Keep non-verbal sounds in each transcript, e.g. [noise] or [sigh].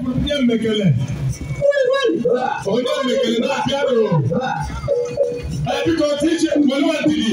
Onye mmekele. Onye mmekele na-abịa rụ. Biko DJ Molufa Ndidi.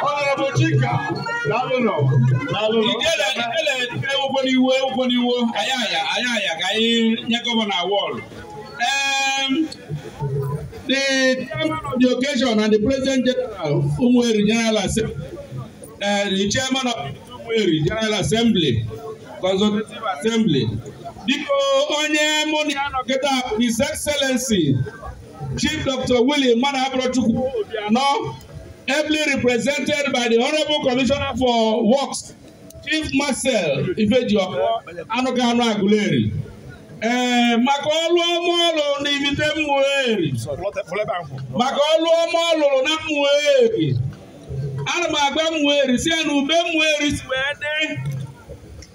Honorable Chica, Laluno, Laluno. n'iwu ụkwụ n'iwu anyị ka anyị nye gọvanọ awọdụ the chairman of the occasion and the president general Umueri General Assembly uh, eh, the chairman of Umueri General Assembly consultative assembly dịka onye mụ na ya nọ his excellency chief dr William mmadụ abụrọchukwu obianọ ably represented by the honorable commissioner for works Chief Marcel Ifediokor Anụkanu Aguleri ee eh, maka ọlụ ọma ọ lụrụ na ibite Mmueri maka ọlụ ọma ọ lụrụ na Mmueri ana m agba Mmueri si ya na ube Mmueri si wee dị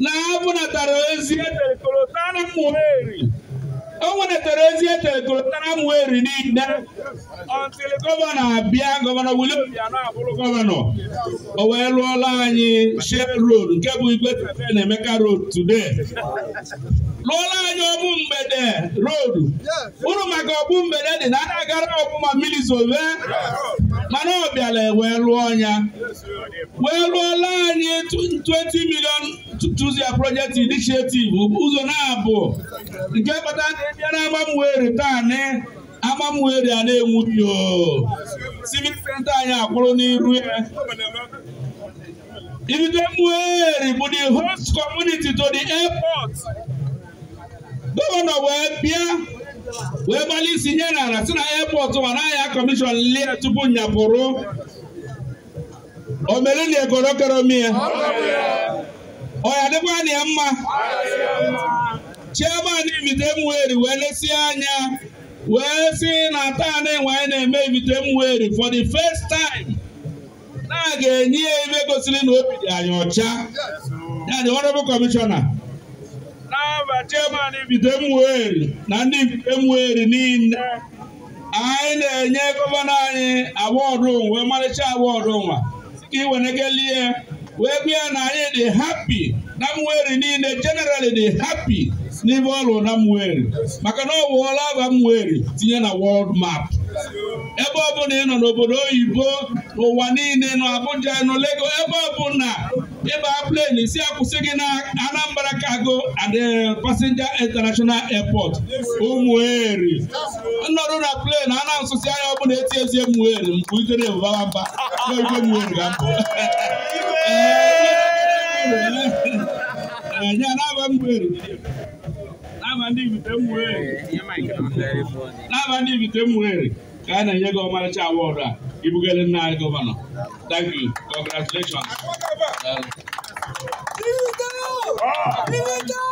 na abụnatara ozi etere kolota na Mmueri o nwetara ozi eteletara m weri niile ọntịl gọvanọ abịa gọvanọ William Obianọ abụrụ gọvanọ o wee lụọla anyị Shell Road nke bụ Igwe na Emeka Road today lụọla anyị ọbụ mgbede road uru maka ọbụ mgbede dị na a na-agara ọbụma mmiri zove mana ọ bịara e wee lụọ ya wee lụọla anyị 20 million tuzia project initiative ụzọ na-abụ nke kpata na ebiara agbamweri taa na agbamweri a na-enwughị o civil center anyị akwụrụ n'iru ya ibidoweri bụ the host community to the airport gọvanọ wee bịa wee gbalị isi nye n'ala si na airport ma na ahịa kọmishọn lie tupu nyapụrụ O mere na mie ọ ya dịkwa na ya mma chee Ibitemweri wee lesie anya wee si na taa na enwe anyị na-eme ibite Ibitemweri for the first time na a ga-enye ya ebe gosiri na obi dị anyị ọcha ya dị honorable kọmishọna na mba chairman Ibitemweri na ndị ibite Ibitemweri niile anyị na-enye gọvanọ anyị awọdụ wee mmalịcha awọdụ nwa si ka iwenekelie wee gwa ya na anyị dị hapi na mweri niile generally dị hapi. N'ime ọrụ na Mwerri maka na ọ bụ ọlaba tinye na wọld map ebe ọ bụla ị nọ n'obodo oyibo ụwa niile nọ Abuja nọ ebe ọ na ịba plen si akwụsị gị na Anambra kago and eh, Passenger International Airport ụmụeri ọnọdụ na plen a na-asụsị anya ọ eti ezi mgbe ga [laughs] mbụ laba ndị ibite mwere laba eh, eh, ndị ibite mwere ka eh, a na-enye gị ọmarịcha awọdụ a ibugere nna anyị gọvanọ thank you congratulations Here we go!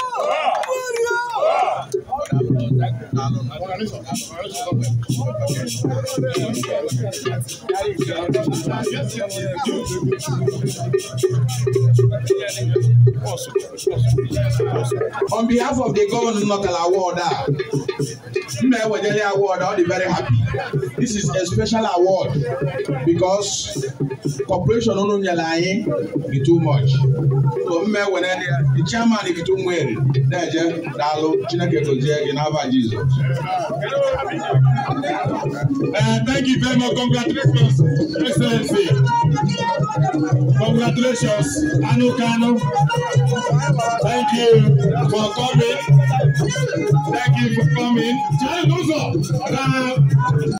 On behalf of the government, Governor Nokala Warda, Nna Ewedele award, I'll be very happy. This is a special award because corporation no no nyalaye be too much. So Nna Ewedele, the chairman if too well, there je dalo Chineke to je in our Jesus. Uh, thank you very much. Congratulations, Excellency. Congratulations, Anu Kano. Thank you for coming. Thank you for coming.